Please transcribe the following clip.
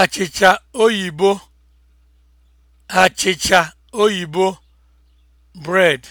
achịcha oyibo achịcha oyibo bread